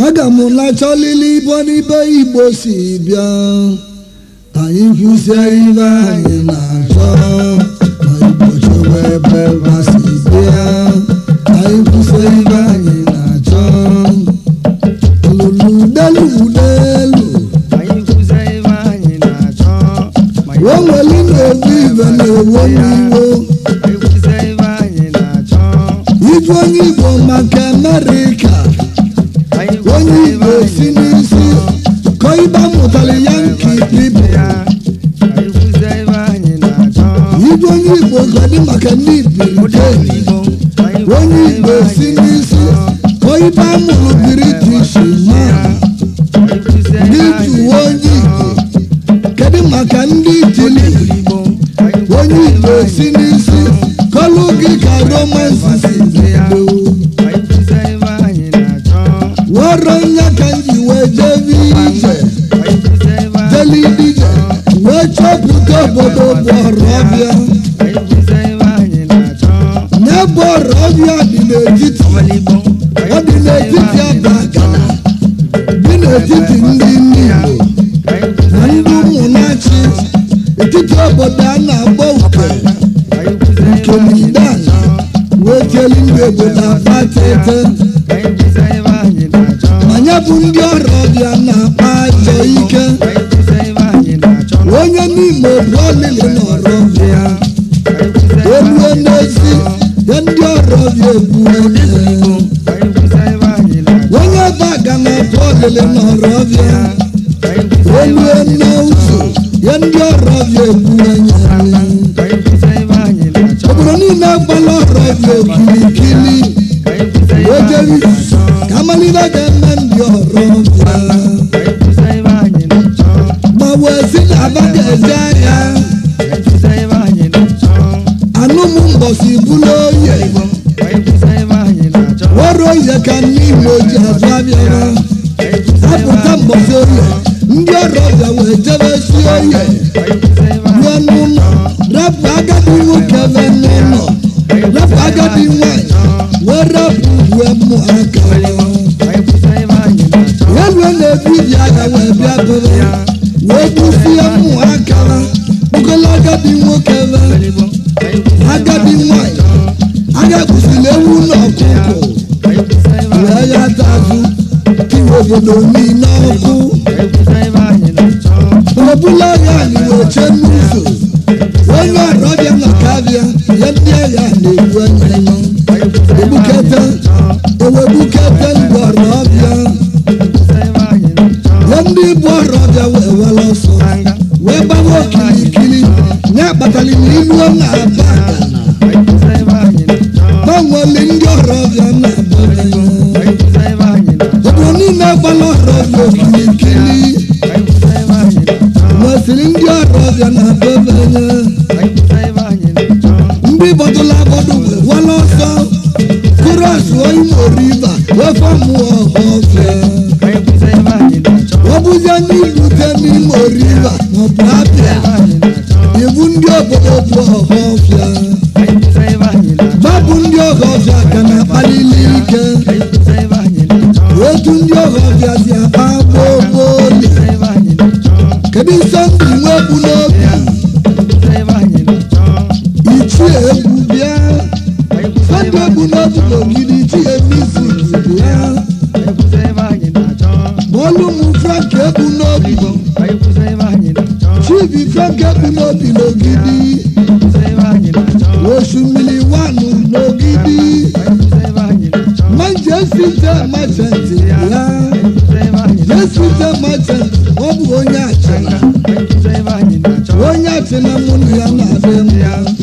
magamulacha lili bonibe igbo si bịa ka anyị kwụsie ibe anyị na-achọ ma igbo chọwa ebe ụwa si bịa ka anyị kwụsie ibe na-achọ lulu delu delu weweli na-ewu ibe na-ewo n'iwo ịjụ onye igbo maka amerịka onye igbo si n'isi kọ ịba yanki ibe igwe onye igbo gọdị maka ndị ibirite onye igbo si n'isi kọ ịba mụrụ british ma n'ịtụ onye igbo kedu maka ndị itili onye igbo si n'isi kọlụ gị ka dije deli dije wechọpụta obodo bọrọbịa nye bọrọbịa dị n'etiti ọ dị n'etiti abakana dị n'etiti ndị ndị igbo na ndị ụmụnachi etiti obodo a na bụ ndị ọrọbịa na-akpa ife ike onye n'ime brolili na ọrọbịa egbue n'ezi ya ndị ọrọbịa egbuo onye baga na brolili na ọrọbịa egbue n'ụzọ ya ndị ọrọbịa egbuo obodo niile agbala ọrọbịa okirikiri ojewi ka amalile ga òsìnkú ló yẹ ìbọn. wọ́n ròyìn ká ní ìwé ojú àfáàmì ọ̀rọ̀. sábùtà mọ̀ sí oyè ndị ọrụ bịawa ejebe si oyè ruo n'ụlọ rapụ agadi nwoke be n'ụlọ rapụ agadi nwanyị wee rapụ uwe mụ aka wee rue na-ebu ibi agha wee bịa bụrụ wee gbusie mụ aka Bukola agadi nwa kele agadi nwanyị anya kwụsịrị ewu na ọkụkọ wee ya dazụ iwe obodo niile ọkụ obula ya anyị na-eche n'ụzọ onye ọrụ ya ndị agha na-ewu anya ebukete ewebukete bịa na be be nye ndị bọtụla bọdụ wala ọsọ kụrụ asụọ imo riva wefe mụọ ọfe ọ bụzie ndị ibute n'imo riva maọbụ abịa ibu ndị obodo bụ ọhọfịa mabụ ndị ọhọfịa ka na-akpalili ike otu ndị ọhọfịa si akpa gbogbo kedu nsọ lògidì tí èmi sì tìbú rá. Bọ́lúmu fẹ́ǹkì ebu n'obi. Tíìbì fẹ́ǹkì ebu n'obi lògidì. Oṣùmìlì wánù lògidì. Jésù jẹ́ mọ́tẹ̀ǹtì rá. Jésù jẹ́ mọ́tẹ̀ǹtì ọ bụ onye achịna. Onye achịna mụ na ya na-abịa